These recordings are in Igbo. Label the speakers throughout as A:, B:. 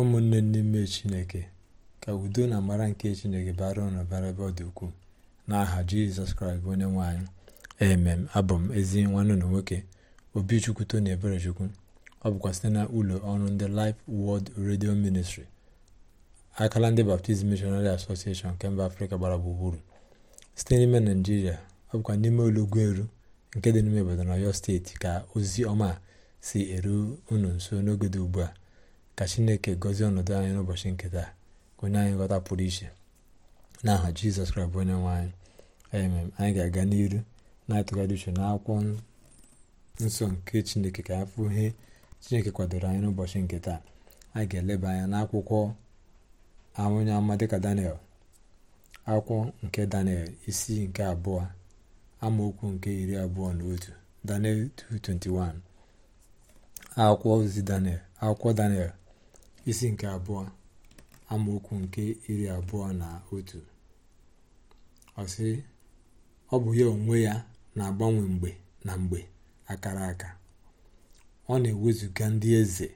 A: ụmụnne n'ime chineke ka udo na amara nke chineke bara ụnụ bara ebe ọ dị ukwuu n'aha jizọs kraịst bụ onye nwaanyị emem abụ m ezi nwanne ụlọ nwoke obichukwu na eberechukwu ọ bụkwa site na ụlọ ọrụ ndị Life wọld redio ministri akala ndị Baptist mishonari Association nke mba afrịka gbara gburugburu site n'ime naijiria ọ bụkwa n'ime olugwu eru nke dị n'ime obodo na Ọyọ steeti ka ozi ọma si eru unu nso n'oge dị ugbu a ka chineke gọzie ọnọdụ anyị n'ụbọchị nke taa onye anyị nghọta pụrụ iche aha jizọs kraịst bụ onye nwe anyị anyị ga-aga n'iru na-atụgharị uche akwụkwọ nsọ nke chineke ka afụ ihe chineke kwadoro anyị n'ụbọchị nke taa anyị ga-eleba anya n'akwụkwọ onye ama dịka daniel akwụkwọ nke daniel isi nke abụọ amaokwu nke iri abụọ na otu daniel 2:21 akwụkwọ ozi daniel akwụkwọ daniel isi nke abụọ amaokwu nke iri abụọ na otu ọsị ọ bụ ya onwe ya na-agbanwe mgbe na mgbe akara aka ọ na-ewezuga ndị eze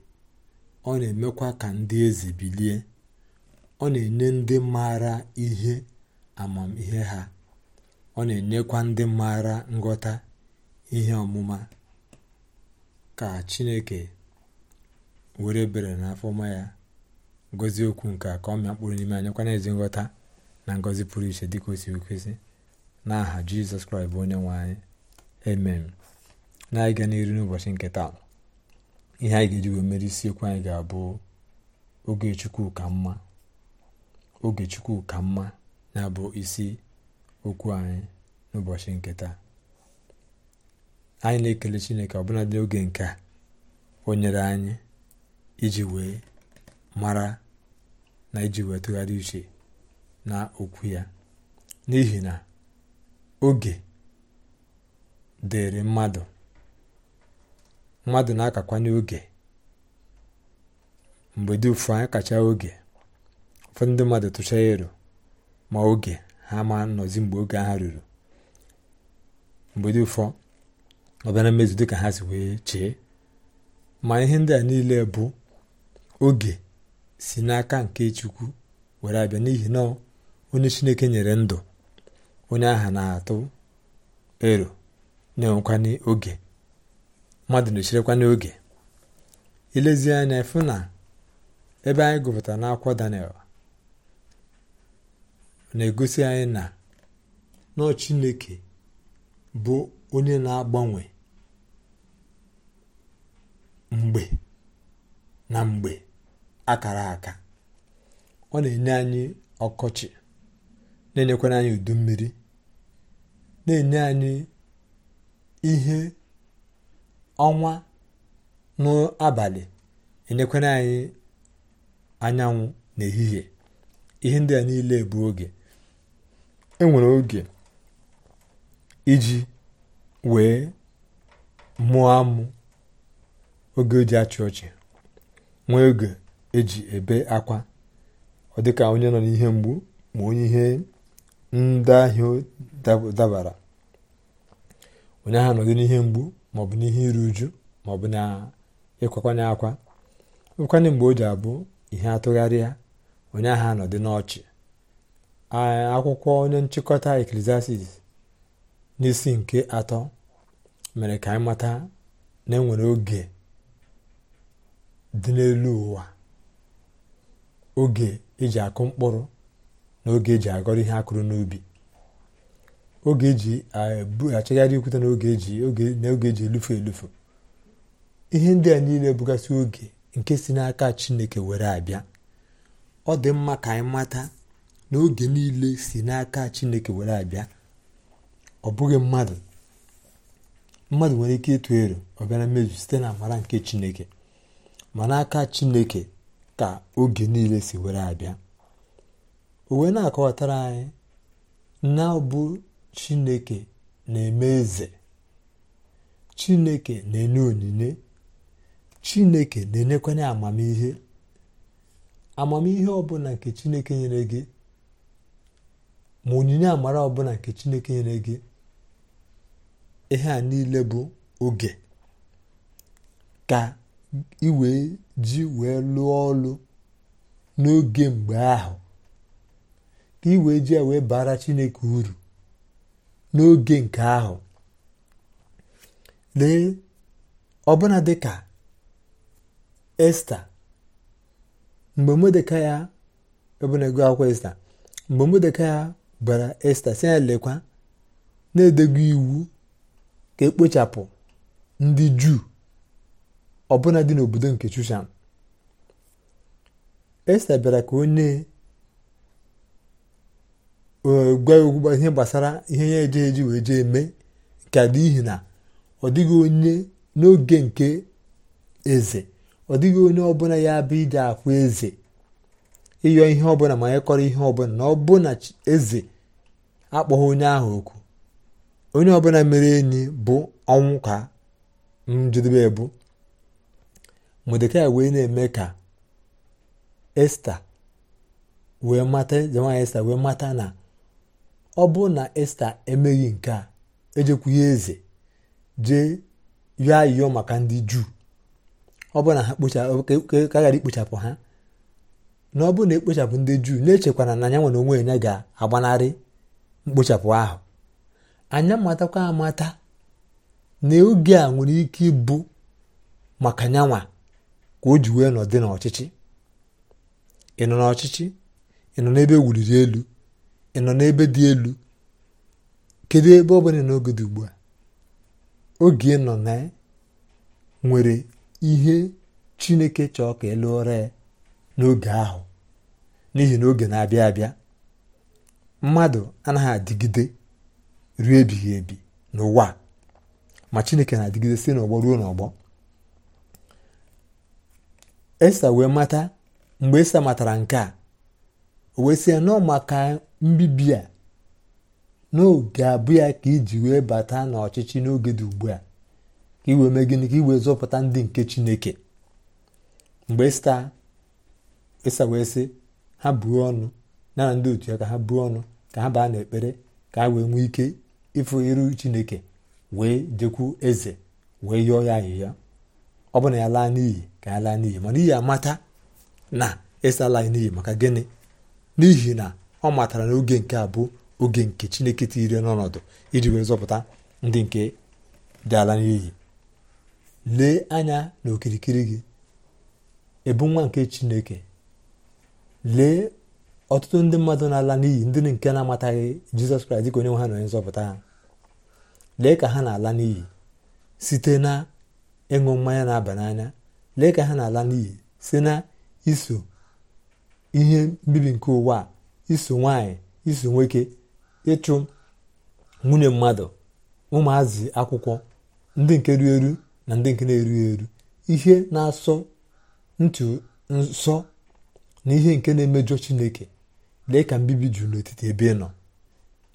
A: ọ na-emekwa ka ndị eze bilie ọ na-enye ndị maara ihe amamihe ha ọ na-enyekwa ndị maara nghọta ihe ọmụma ka chineke were ebere na afọma ya ngozi okwu nke a ka ọ mịa mkpụrụ n'ime anyị kwana ezi nghọta na ngọzi pụrụ iche dịka o si na n'aha jizọs kraịst bụ onye nwe anyị amen na-ịga n'iru n'ụbọchị nke taa ihe anyị ga-eji wee mere isiokwu anyị ga-abụ oge chukwu ka mma oge chukwu ka mma na bụ isi okwu anyị n'ụbọchị nke taa anyị na-ekele chineke ọbụla dị oge nke a o nyere anyị iji wee mara na iji wee tụgharị uche na okwu ya n'ihi na oge dịrị mmadụ mmadụ na-akakwanye oge mgbe dị ụfụ kacha oge ụfọdụ ndị mmadụ tụchaa ero ma oge ha ma nọzi mgbe oge ha ruru mgbe dị ụfọ ọ bịa na mmezu dịka ha si wee chee ma ihe ndị a niile bụ oge si n'aka nke chukwu were abịa n'ihi na onye chineke nyere ndụ onye aha na-atụ ero na-enwekwana oge mmadụ na-echirekwana oge ilezi anya fụ na ebe anyị gụpụtara n'akwụkwọ Daniel na-egosi anyị na nọọ chineke bụ onye na-agbanwe mgbe na mgbe akara aka ọ na-enye anyị ọkọchị na-enyekwara anyị udu mmiri na-enye anyị ihe ọnwa n'abalị enyekwara anyị anyanwụ n'ehihie ihe ndị a niile bụ oge enwere oge iji wee mụọ amụ oge oji achị ọchị nwee oge eji ebe akwa ọ dịka onye nọ n'ihe mgbu ma onye ihe ndahie dabara onye ahụ nọdụ n'ihe mgbu maọbụ n'ihe iru uju maọbụ na ịkwakwanye akwa nwekwanye mgbe o ji abụ ihe atụgharịa onye ahụ nọdụ n'ọchị akwụkwọ onye nchịkọta eklesiastis n'isi nke atọ mere ka anyị mata na enwere oge dị n'elu ụwa oge eji akụ mkpụrụ na oge eji agọrọ ihe akụrụ n'ubi oge eji achagharị ikwute na oge eji elufu elufu ihe ndị a niile bụgasị oge nke si n'aka chineke were abịa ọ dị mma ka anyị mata na oge niile si n'aka chineke were abịa ọ bụghị mmadụ mmadụ nwere ike ịtụ ero ọ bịa na mmezu site na amara nke chineke ma n'aka chineke ka oge niile si were abịa o wee na-akọwatara anyị na ọbụ chineke na-eme eze chineke na-enye onyinye chineke na-enyekwanye amamihe amamihe ọbụla nke chineke nyere gị ma onyinye amara ọbụla nke chineke nyere gị ihe a niile bụ oge ka i wee ji wee lụọ ọlụ n'oge mgbe ahụ ka ị wee ji wee bara chineke uru n'oge nke ahụ lee ọbụna dịka esta mgbe modeka ya ọbụna ego akwụkwọ esta mgbe modeka ya bara esta si ya lekwa na-edego iwu ka ekpochapụ ndị juu ọbụna dị n'obodo nke Shushan Esta bịara ka onye e, gwa ya ihe gbasara ihe ya eje eji wee jee eme nke n'ihi na ọ dịghị onye n'oge nke eze ọ dịghị onye ọbụla ya bụ ije akwa eze ịyọ ihe ọbụla ma ya kọrọ ihe ọbụla na ọbụna eze akpọghị onye ahụ oku onye ọbụla mere enyi bụ ọnwụ ka njedebe bụ modekai wee na-eme ka esta wee mata nwaanyị esta wee mata na ọ bụrụ na esta emeghị nke a ejekwughị eze jee yọọ ayịyọ maka ndị juu ọ bụrụ na ha ka ikpochapụ ha na ọ bụrụ na ekpochapụ ndị juu na-echekwana na anya nwere onwe ya ga-agbanarị mkpochapụ ahụ anya matakwa amata na oge a nwere ike ịbụ maka nyanwa ka o ji wee nọ dị n'ọchịchị ị nọ n'ọchịchị ị nọ n'ebe wuliri elu ị nọ n'ebe dị elu kedụ ebe ọ bụla n'oge dị ugbu a oge nọ na nwere ihe chineke chọọ ka elụọra ya n'oge ahụ n'ihi na oge na-abịa abịa mmadụ anaghị adịgide ruo ebighị ebi n'ụwa ma chineke na-adịgide si n'ọgbọ ruo n'ọgbọ esa wee mata mgbe esa matara nke a o wee sị ya nọ maka mbibi a n'oge abụ ya ka iji wee bata n'ọchịchị n'oge dị ugbu a ka iwee mee gịnị ka zọpụta ndị nke chineke mgbe esa wee sị ha buo ọnụ na ndị otu ya ka ha buo ọnụ ka ha baa n'ekpere ka ha wee nwee ike ịfụ iru chineke wee jekwu eze wee yọọ ya ahịhịa ọ bụ na ya laa n'iyi ka ya laa n'iyi mana iyi amata na ịsalaghị n'iyi maka gịnị n'ihi na ọ matara na oge nke a bụ oge nke chineke tiiri n'ọnọdụ iji wee zọpụta ndị nke dị ala n'iyi lee anya na okirikiri gị ebu nwa nke chineke lee ọtụtụ ndị mmadụ na-ala n'iyi ndị nke na-amataghị jizọs kraịst dịka onye nwe ha na onye nzọpụta ha lee ka ha na-ala n'iyi site na ịṅụ mmanya na-aba n'anya lee ka ha na-ala n'iyi si na iso ihe mbibi nke ụwa iso nwanyị iso nwoke ịchụ nwunye mmadụ ụmụazị akwụkwọ ndị nke ru eru na ndị nke na-erughị eru ihe na-asọ ntụ nsọ na ihe nke na-emejọ chineke lee ka mbibi juru n'etiti ebe ị nọ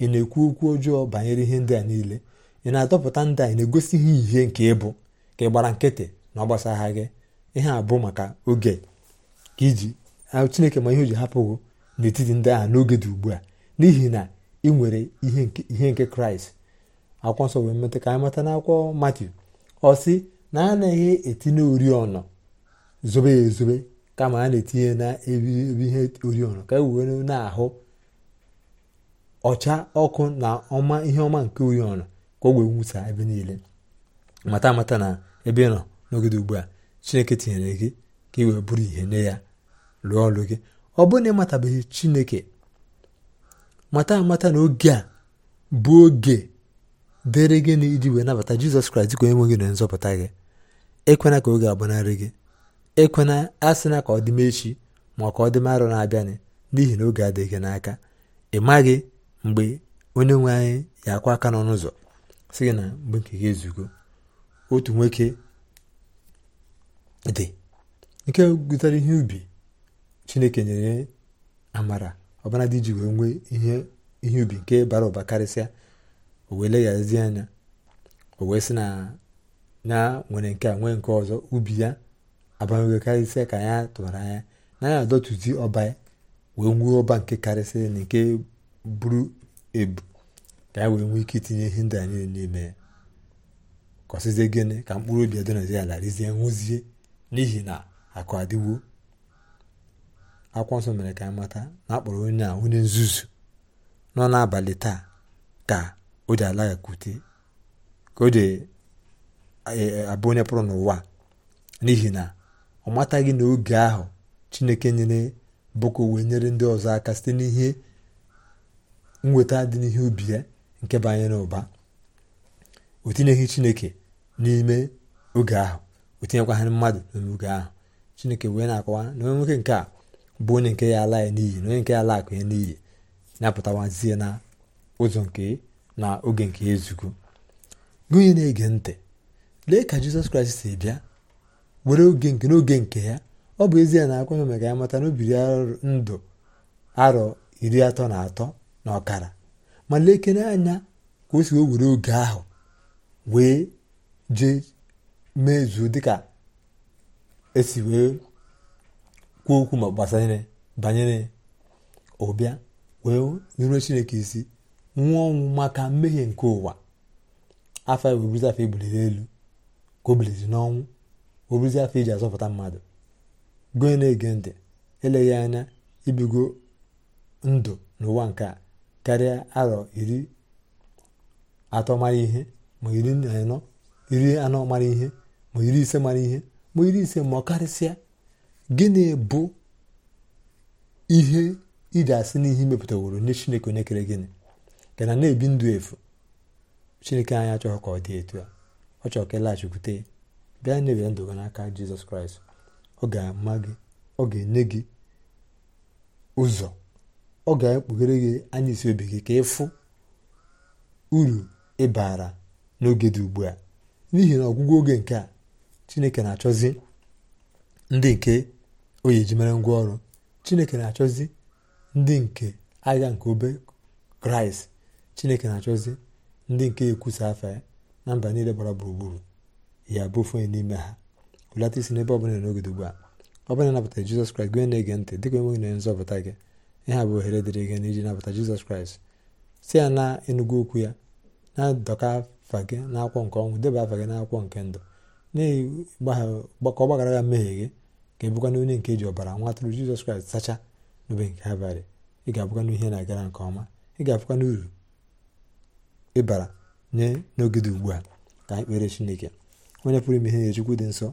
A: ị na-ekwu okwu ọjọọ banyere ihe ndị a niile ị na-adọpụta ndị a ị na-egosi ihe ihe nke ịbụ ka ị gbara nkịtị na ọ gbasagha gị ihe a bụ maka oge ka iji chineke ma ihe o ji hapụ gị n'etiti ndị agha n'oge dị ugbu a n'ihi na ị nwere ihe nke kraịst akwụkwọ nsọ wee meta ka anyị mata n'akwụkwọ matiu ọ sị na a naghị etinye oriọna zobe ya ezobe kama a na-etinye na ihe oriọna ka e wee na-ahụ ọcha ọkụ na ọma ihe ọma nke oriọna ka o wee nwụsa ebe niile mata amata na ebe ị nọ n'ogede ugbu a chineke tinyere gị ka ị wee bụrụ ihe nye ya rụọ ọrụ gị ọ bụrụ na ịmatabeghị chineke mata amata na oge a bụ oge dịrị gị na iji wee nabata jizọs kraịst dịka onye nwe gị na nzọpụta gị ekwena ka oge agbanarị gị ekwena asịna ka ọ dị echi ma ka ọ dị m arọ na-abịanị n'ihi na oge adịghị gị n'aka ị maghị mgbe onye nwe anyị ya akwa aka n'ọnụ ụzọ si gị na mgbe nke gị ezugo otu nwoke dị nke gụtara ihe ubi chineke nyere amara ọbara dị iji wee nwee ihe ubi nke bara ụba karịsịa o wee leghazi anya o wee sị na ya nwere nke a nwee nke ọzọ ubi ya abawego karịsịa ka ya tụwara anya na ya adọtuzi ọba wee nwee ọba nke karịsịa na nke buru ebu ka ya wee nwee ike itinye ihe ndị a n'ime ya ka gịnị ka mkpụrụ obi ya alarizie nwụzie n'ihi na akụ adịwo akwụkwọ nsọ mere ka a mata na akpọrọ onye a onye nzuzu nọ n'abalị taa ka o ji alaghakwute ka o ji e, e, abụ onye pụrụ n'ụwa n'ihi na ọ mataghị na oge ahụ chineke nyere boko wee nyere ndị ọzọ aka site n'ihe nweta dị n'ihe ubi ya nke banyere ụba o tinyeghị chineke n'ime oge ahụ o tinyekwaghị mmadụ n'ime oge ahụ chineke wee na-akọwa na onye nwoke nke a bụ onye nke ya ala ya n'iyi na onye nke ya ala akụ ya n'iyi na na ụzọ nke na oge nke ezugo gị onye na-ege ntị lee ka jizọs kraịst si bịa were oge nke n'oge nke ya ọ bụ ezie na akwụkwọ maka ya mata na o biri ndụ arọ iri atọ na atọ na ọkara ma lekere anya ka o si wee were oge ahụ wee ji mezuo dịka esi wee kwuo okwu ma gbasanyere banyere ụbịa wee nyeruo chineke isi nwụọ ọnwụ maka mmehie nke ụwa afọ wee afọ ebuliri elu ka o biliri n'ọnwụ o afọ iji e azọpụta mmadụ goe na-ege ntị eleghị anya ibigo ndụ n'ụwa nke a karịa arọ iri atọ mara ihe ma iri na anọ iri anọ mara ihe ma iri ise mara ihe ma iri ise ma ọ karịsịa gịnị bụ ihe iji asị n'ihe imepụtaworo nye chineke onye kere gịnị ka na na-ebi ndụ efu chineke anyị achọghị ka ọ dị etu a ọ chọrọ ka ịlaghachikwute e ya bịa nyebere ndụ gị n'aka jizọs kraịst ọ ga-ama gị ọ ga-enye gị ụzọ ọ ga-ekpughere gị anya isi obi gị ka ịfụ uru ịbara n'oge dị ugbu a n'ihi na ọgwụgwụ oge nke a chineke na-achọzi ndị nke o eji mere ngwa ọrụ chineke na-achọzi ndị nke agha nke obe kraịst chineke na-achọzi ndị nke ekwusa afa ya na mba niile gbara gburugburu ya bụ ofe n'ime ha ụlata isi n'ebe ọbụla n'oge ugbu a ọ bụla napụtara jizọs kraịst gị na-ege ntị dịka enweghị na nzọpụta gị ihe a bụ ohere dịrị gị n'iji nabata jizọs kraịst si ya na enugwu okwu ya na dọka. afa gị nke ọnwụ deba afa gị n'akwụkwọ nke ndụ ka ọ gbaghara ya mmehie gị ka ebụkwana onye nke e ji ọbara nwa atụrụ jizọs kraịst sacha n'obe nke abalị ị ga-abụkwana ihe na-agara nke ọma ị ga-abụkwana uru ịbara nye n'oge ugbu a ka anyị kpere chineke onye pụrụ ime ihe nye chukwu dị nsọ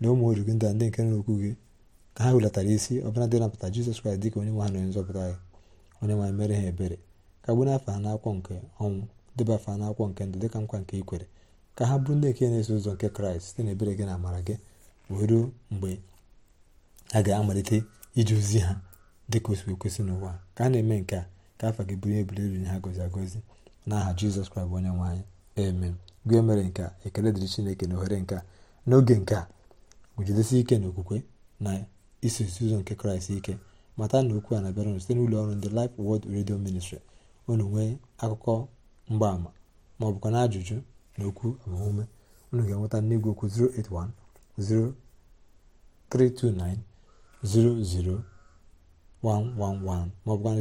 A: na ụmụ oru gị ndị ndị nke nrokwu gị ka ha hulatara isi ọbụla dị napụta jizọs kraịst ka onye nwe ha na onye nzọpụta gị onye nwaanyị mere ha ebere ka gbu n'afọ ha n'akwụkwọ nke ọnwụ debafa n'akwụkwọ nke ndụ dịka nkwa nke ikwere ka ha bụrụ ndị nke na-eso ụzọ nke kraịst site n'ebere gị na amara gị wee ruo mgbe a ga-amalite iji ozi ha dị ka si ekwesị n'ụwa ka a na-eme nke a ka afọ gị bụrụ ebule riri ha gozi agozi n'aha jizọs kraịst onye nwe anyị amen gị mere nke a ekele dịrị chineke na ohere nke a n'oge nke a gujidesi ike na okwukwe na isosi ụzọ nke kraịst ike mata na okwu a na-abịara site n'ụlọ ọrụ ndị lif wod Radio Ministry unu nwee akụkọ mgbaama ma ọ bụkwa na ajụjụ na okwu agbamume unu ga-enweta n'igwe okwu 081 0329 00111 ma ọ bụkwa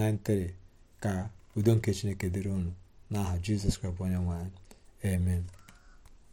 A: na 080 ka udo nke chineke dịrị ụnụ n'aha jizọs kraịst onye nwanyị. amen